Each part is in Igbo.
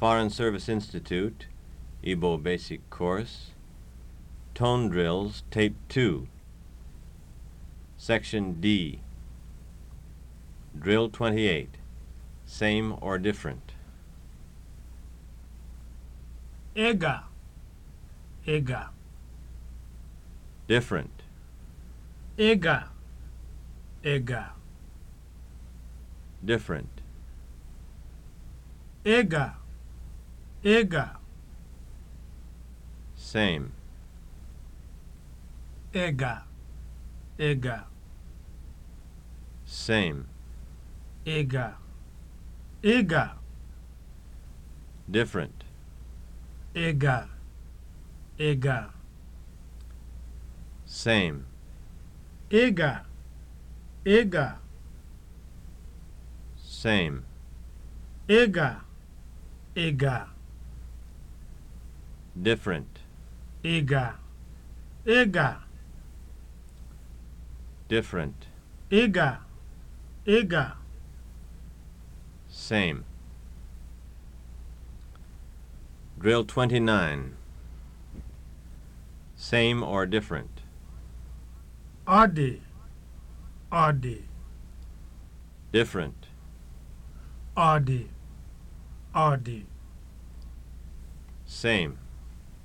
Foreign Service Institute, Igbo Basic Course, Tone Drills, Tape 2, Section D, Drill 28, Same or Different. Ega, Ega. Different. Ega, Ega. Different. Ega. Ega! same Ega! ega! same Ega! ega! different Ega! ega! same Ega! ega! same Ega! ega! different Ịga. Ịga! different Ịga! Ịga! same drill 29 same or different ọ dị ọ dị different ọ dị ọ dị same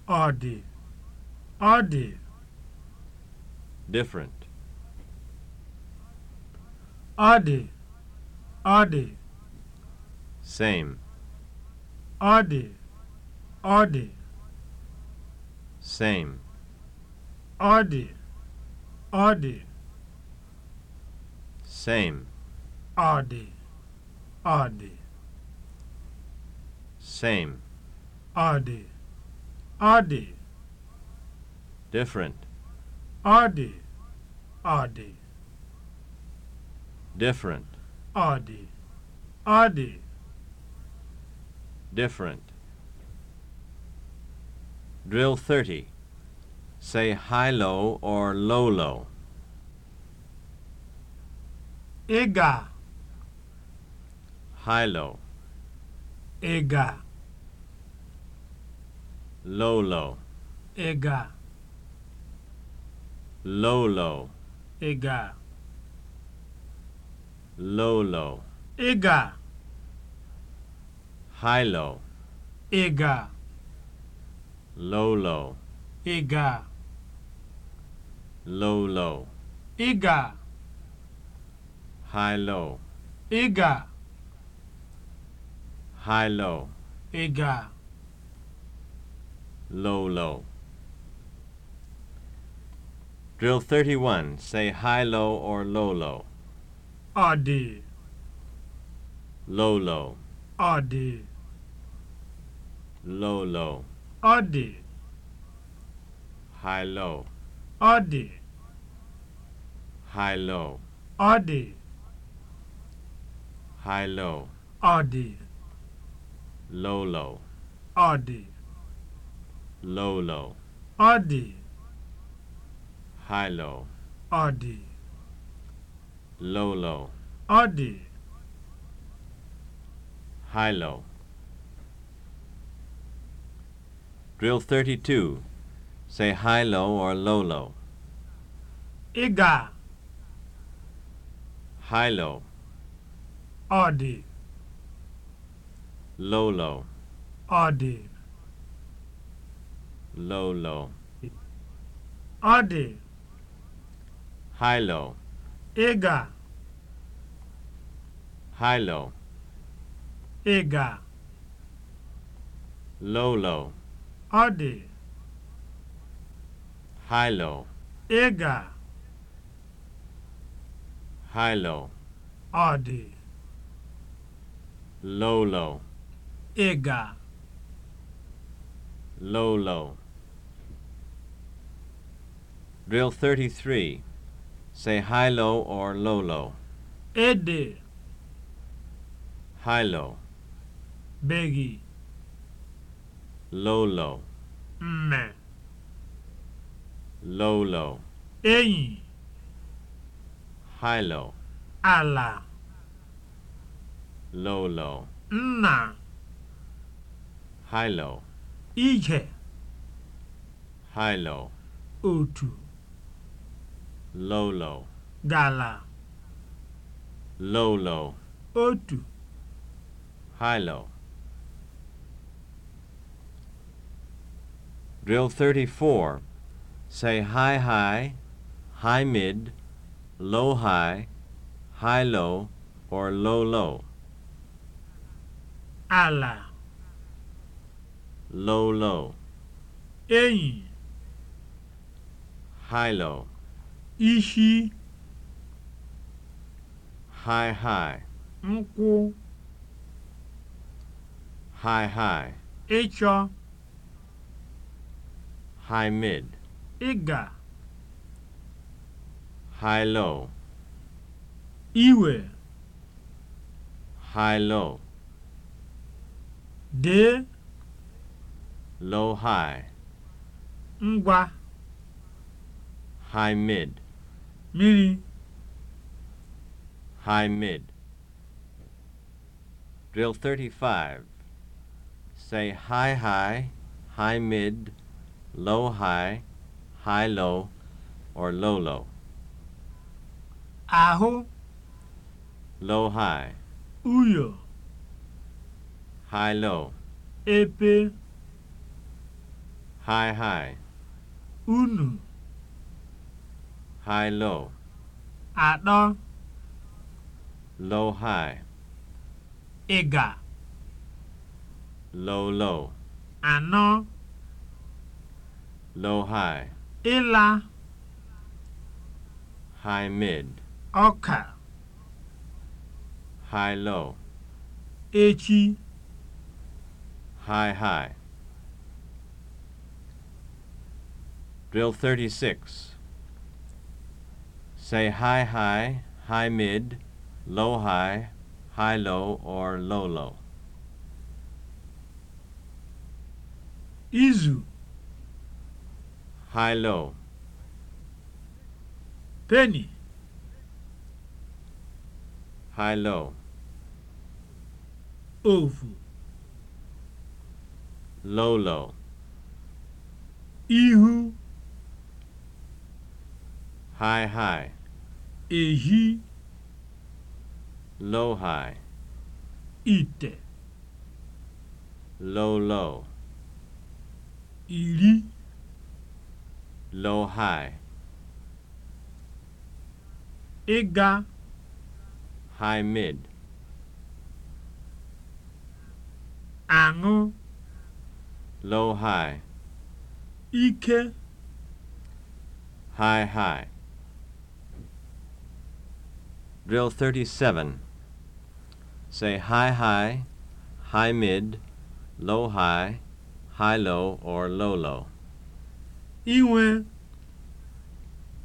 Ọ dị, ọ dị. Different. Ọ dị, ọ Same. Ọ dị, Same. Ọ dị, Same. Ọ dị, Same. Ọ Ọ dị. Different. Ọ dị. Ọ dị. Different. Ọ dị. Ọ dị. Different. Drill 30. Say high-low or low-low. Ị ga. High-low. Ị ga. Lolo. Ị ga. Lolo. Ị ga. Lolo. Ị ga. Hilo. Ị ga. Lolo. Ị ga. Lolo. Ị ga. Hilo. Ị ga. Hilo. Ị ga. low, low. Drill 31. Say high, low, or low, low. Ọ dị. Low, low. Ọ dị. Low, low. Ọ dị. High, low. Ọ dị. High, low. Ọ dị. High, low. Ọ dị. Low, low. Ọ dị. low low ọ dị high low ọ low low ọ high low Drill 32. Say high low or low low. Iga. High low. Odi. Low low. Odi. low low ọ dị high low ị ga high low ị ga low low ọ dị high low ị ga high low ọ dị low low ị ga low low Drill 33. Say high-low or low-low. Ede. High-low. Begi. Low-low. Mme. Low-low. Enyi. High-low. Ala. Low-low. Nna. High-low. Ije. High-low. Otu. lolo. gala lolo. low otu high drill 34 say high high high mid low high high low or low low ala low low enyi high low ishi haịhaị nkwụ haịhaị ịchọ high mid ịga high low iwe high low dee low high ngwa high mid miri High mid. Drill 35. Say high high, high mid, low high, high low, or low low. ahu Low high. Uyo. High low. Epe. High high. Unu. high low atọ low high ịga low low ano, low high ịla high mid ọka high low echi high high drill 36 Say high high, high mid, low high, high low, or low low. Izu. High low. Penny. High low. Ovo. Low low. Ihu. high-high ehi low-high Ite! low-low Ili! low-high ịga high-mid aṅụ low-high ike high-high Drill 37. Say high high, high mid, low high, high low, or low low. Iwe.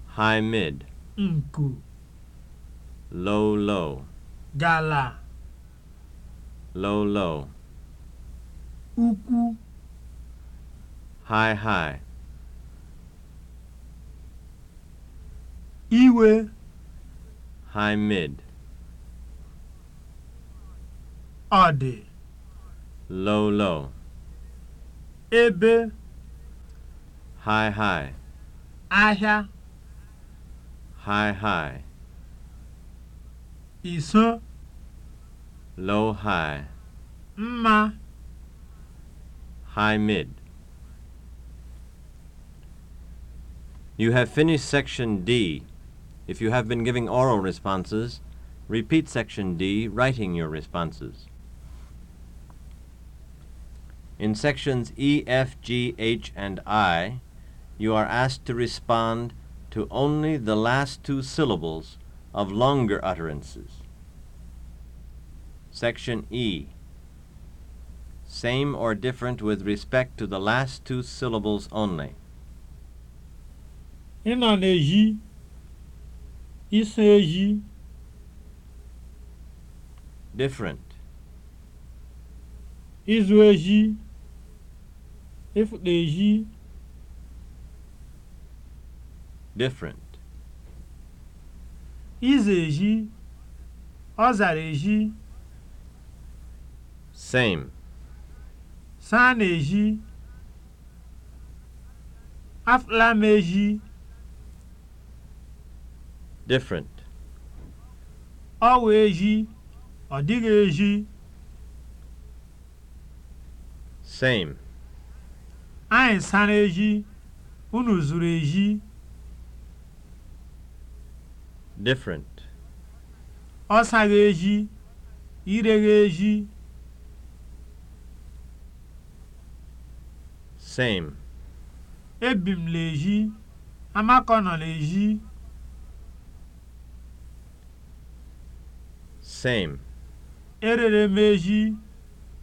High mid. Nku. Low low. Gala. Low low. Ukwu. High high. Iwe. high mid ọdị. low low ebe high high ahịa high high iso low high mma high mid You have finished section D. If you have been giving oral responses, repeat section D, writing your responses. In sections E, F, G, H, and I, you are asked to respond to only the last two syllables of longer utterances. Section E. Same or different with respect to the last two syllables only. In on Isi ehi. Different. izu ehi. Ịfụta ehi. Different. izu ehi. Ọ zara ehi. Same. Saa na ehi. Afụla m ehi. different ọ wụ eji ọ dịghị eji same anyị sara eji unu zuru eji different ọ saghị eji ireghi eji same ebi m na-eji amakọ nọ na-eji same. Erere m eji,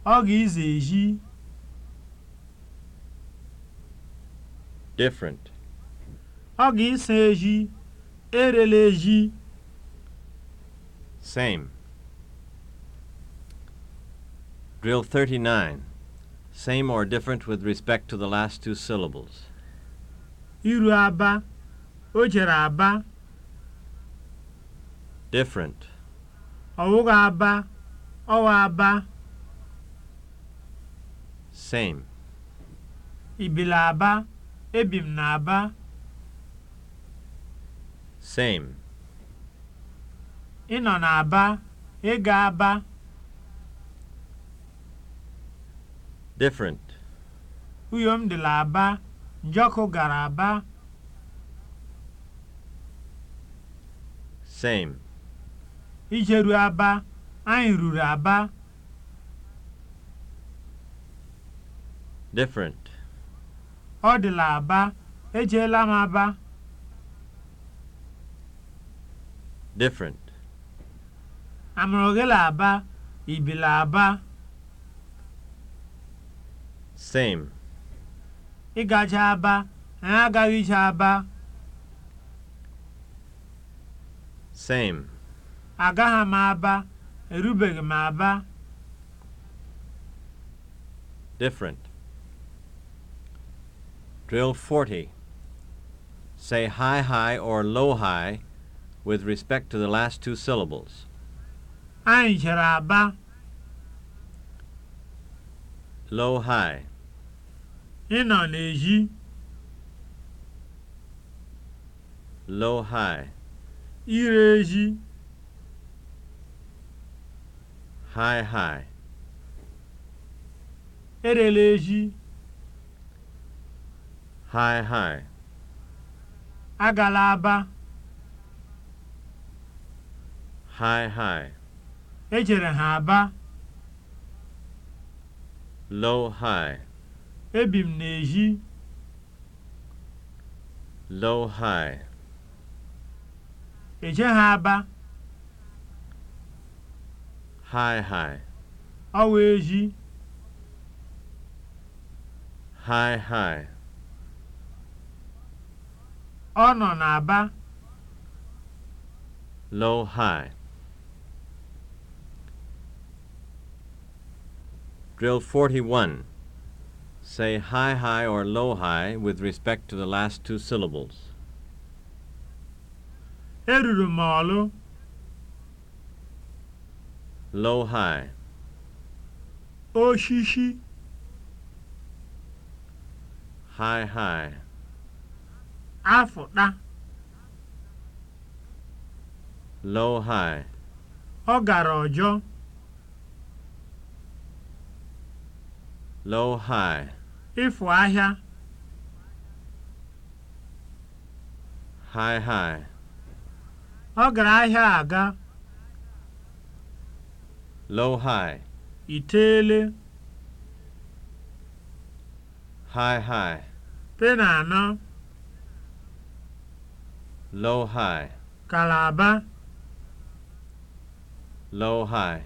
ọ ga-ize eji. Different. Ọ ga-ịsa eji, erele eji. Same. Drill 39. Same or different with respect to the last two syllables. Iru aba, o jere aba. Different. ọwụghị aba ọwa aba same ibila aba ebim na aba. same ị nọ n'aba ịga aba different uyom dịla aba njọkọ gara aba same Ijeru Aba, anyị ruru Aba. Different. Ọ dịla Aba, ejeela m Aba. Different. Amụrụ gị la Aba, ibila Aba. Same. Ịgacha Aba, anyị agaghị ije Aba. Same. Agaghị m Aba. Erubeghị m Aba. Different. Drill 40. Say high high or low high with respect to the last two syllables. Anyị chere Aba. Low high. Ị nọ n'èzí. Low high. Ire ezi. High, high. erela High, high. agala aba High, high. ejere ha aba Low, lowhai ebi m n'ezi high. eje ha aba haị haị awa ezi haị haị ọ nọ n'Aba low high Drill 41. Say high high or low high with respect to the last two syllables. Eruru m Low-high, lowhigh oshishi high high afụta low high ọ gara ọjọọ low high ịfụ ahịa high high ọ gara ahịa aga low high itele high high tena anọ low high kalaba low high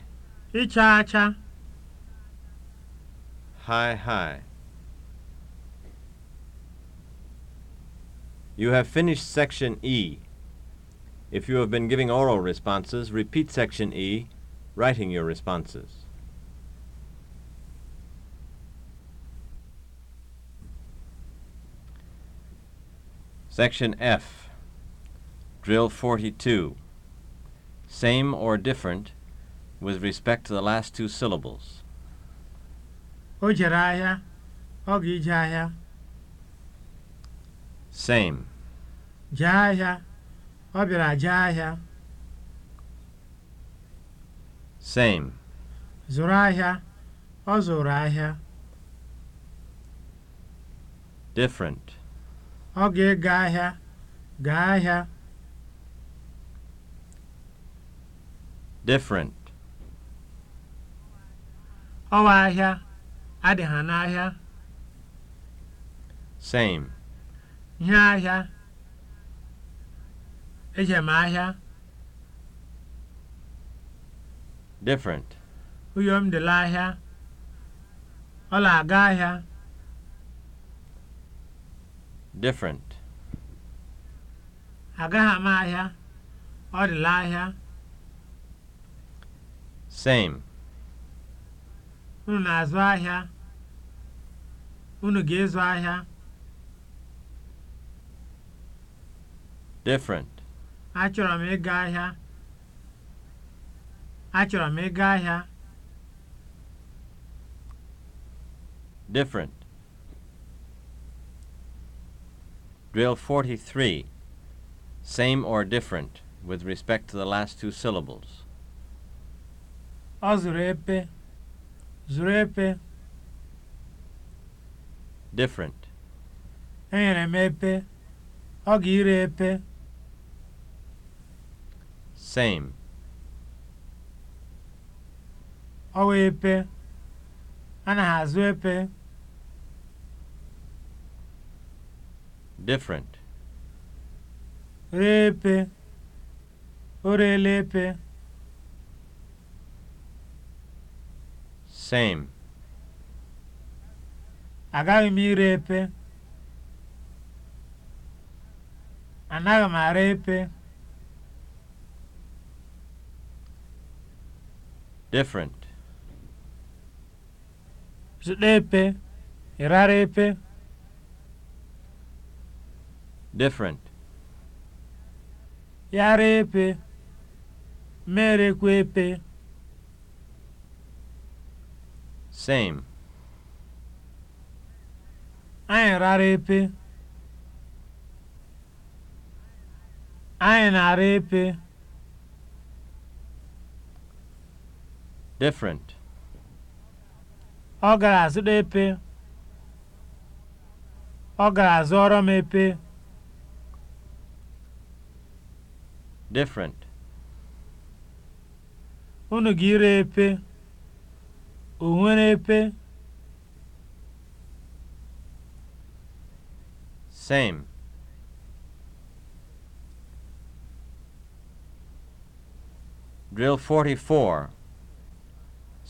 ịcha acha high high You have finished section E. If you have been giving oral responses, repeat section E writing your responses. Section F, Drill 42. Same or different with respect to the last two syllables. O jere ahịa, ọ ga ahịa. Same. Jee ahịa, ọ bịara jee ahịa. Same. Zụrụ ahịa. Ọ zụrụ ahịa. Different. Ọ ga-ega ahịa. Gaa ahịa. Different. Ọwa ahịa. Adị ha n'ahịa. Same. Ihe ahịa. Ejem ahịa. different. Uyom dị ahịa? Ọ na-aga ahịa. different. Agaghị m ahịa. Ọ dị ahịa. same. Unu na-azụ ahịa. Unu ga ezu ahịa. different. Achọrọ m ịga ahịa. Achọrọ m ịga ahịa. Different. Drill 43. Same or different with respect to the last two syllables. Ọ zụrụ epe. Zụrụ epe. Different. Enyere m epe. Ọ ga-ire epe. Same. ọwa epe na azụ epe different ree epe o reela epe same agaghị m ire epe anaghị m ara epe different Zuɗepe, irarepe. Different. Yarepe, merekwepe. Same. Anyị epe, Anyị na ara epe. Different. Ọ ga-azụta epe. Ọ ga-azụọrọ m epe. Different. Unu ga-ire epe. O nwere epe. Same. Drill 44.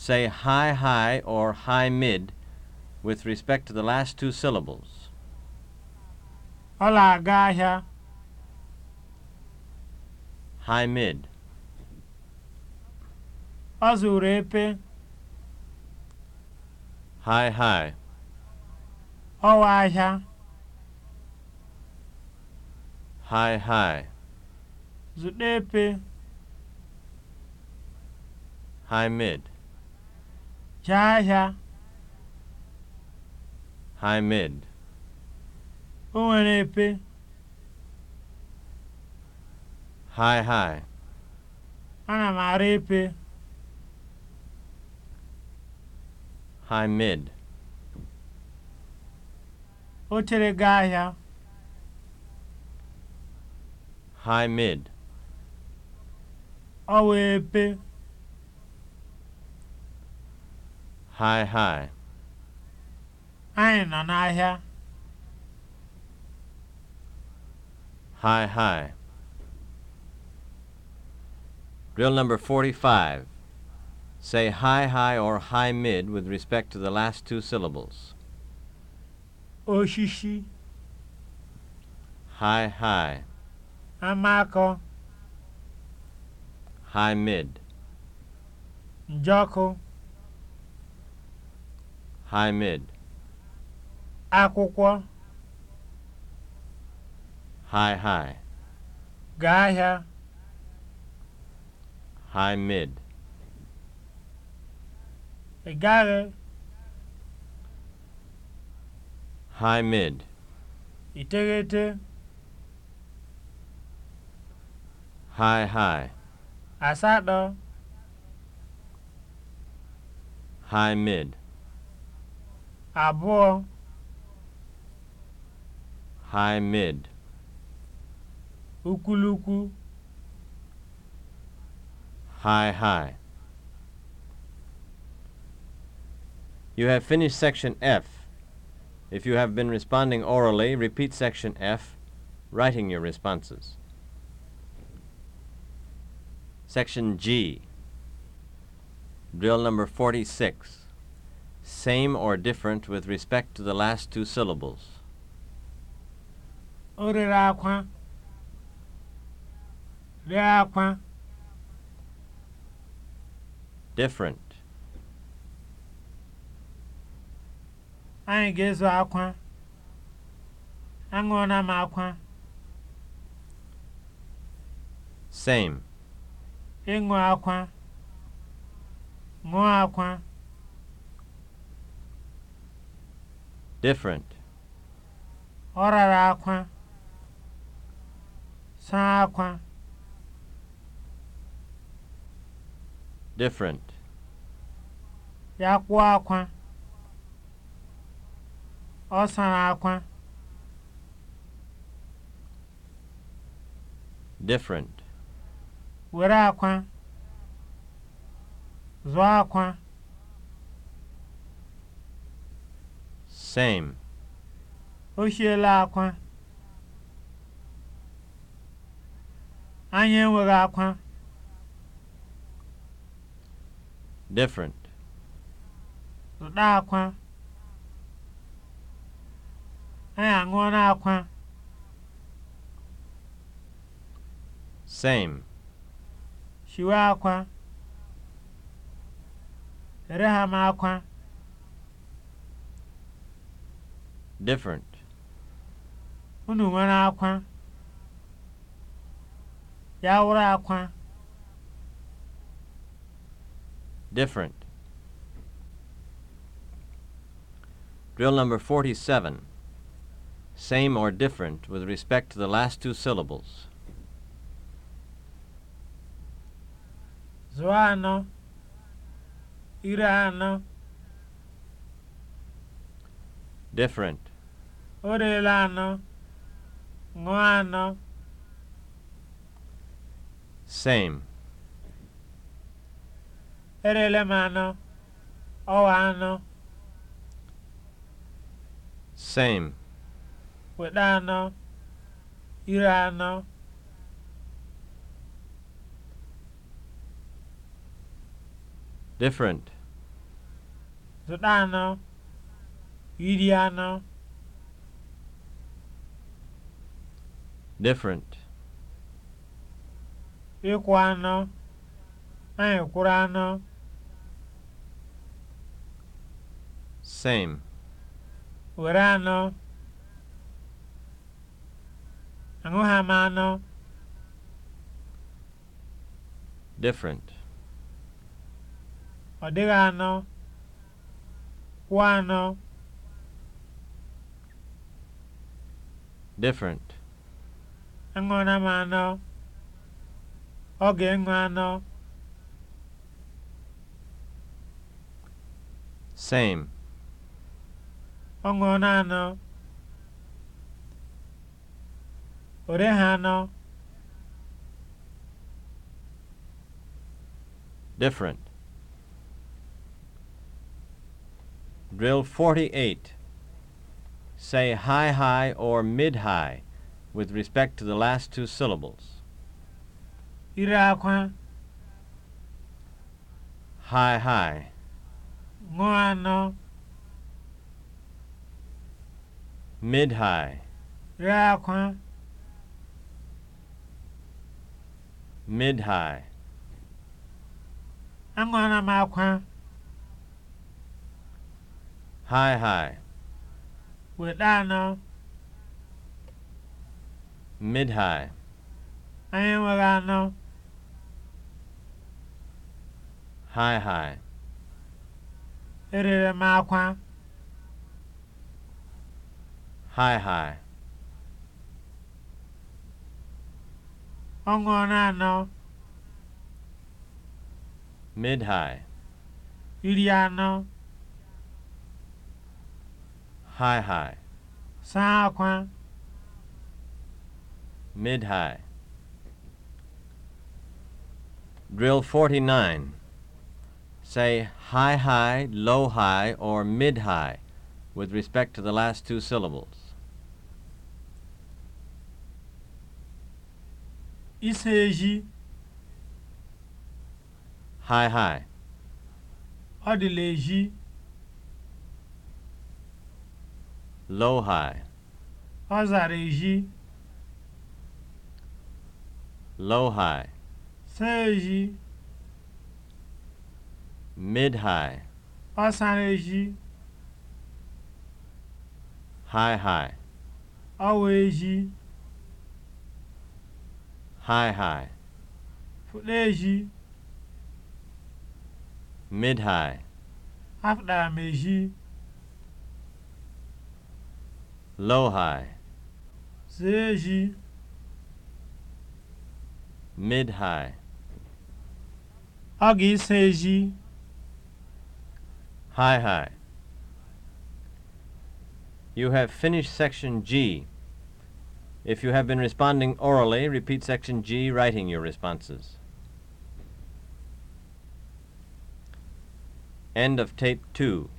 say high high or high mid with respect to the last two syllables. Ọ aga ahịa. High mid. Ọ zụrụ epe. High high. Oh, Ọwa ahịa. High high. Zụta epe. High mid. Jaja. Hi, O nwere epe. Hi hi. Ana m ara epe. Hamid. O chere gị ahịa. Hamid. Ọ wee epe. Hi, hi. Anyị nọ n'ahịa. Hi, hi. Drill number 45. Say high, high, or high mid with respect to the last two syllables. Oshishi. High, high. Amako. High mid. Njoko. High-mid. Akwụkwọ. High-high. Gaa ahịa. High-mid. Ị gaghị. High-mid. Iteghete. High-high. Asatọ. High-mid. abụọ high mid ukuluku, high high You have finished section F. If you have been responding orally, repeat section F, writing your responses. Section G, drill number 46. same or different with respect to the last two syllables. O akwa. Ree akwa. Different. Anyị ga-ezo akwa. Aṅụọna m akwa. Same. Ịṅụ akwa. Ṅụọ akwa. different. Ọ rara akwa, saa akwa. different. Ya kwuo akwa, ọ sara akwa. different. Were akwa, zụọ akwa. Same. O hiela akwa. Anyị enweghị akwa. Different. akwa. Anyị aṅụọla akwa. Same. Shiwe akwa. Ere ha m akwa. different unu nwere akwa ya wụrụ akwa different drill number 47 same or different with respect to the last two syllables zụọ anọ ire different O elu anọ, ṅụọ anọ. Same. Erela m anọ, ọwa anọ. Same. Weta anọ, ire anọ. Different. Zụta anọ, iri anọ. different ịkwụ anọ anyị kwụrụ anọ same were anọ aṅụha hama anọ different ọ dịghị anọ kwụ anọ different Aṅụọla m anọ, ọ ga-aṅụ anọ. Same. Ọ ṅụọla anọ. O reghị anọ. Different. Drill 48. Say high high or mid high. with respect to the last two syllables. Ire akwa. High, high. Ṅụọ Mid high. Re akwa. Mid high. Aṅụọla m akwa. High high. Weta no. mid-high anyị enweghị anọ. high high erere m akwa high high ọ ṅụọra anọ mid-high iri anọ high high saa akwa mid-high. Drill 49. Say high-high, low-high, or mid-high with respect to the last two syllables. Iseji. High-high. Adileji. Low-high. Azareji. low-high, seji, mid-high, asaneji, high-high, aweji, high-high, ji. mid-high, ji. low-high, seji. mid-high. Ọ ga-eso eji high high. You have finished section G. If you have been responding orally, repeat section G, writing your responses. End of tape 2.